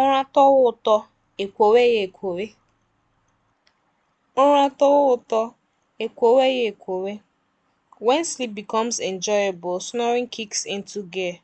ụra tọwa ụtọ e ya ekwowe ụra tọwa ụtọ e ya ekwowe When sleep becomes enjoyable, snoring kicks into gear.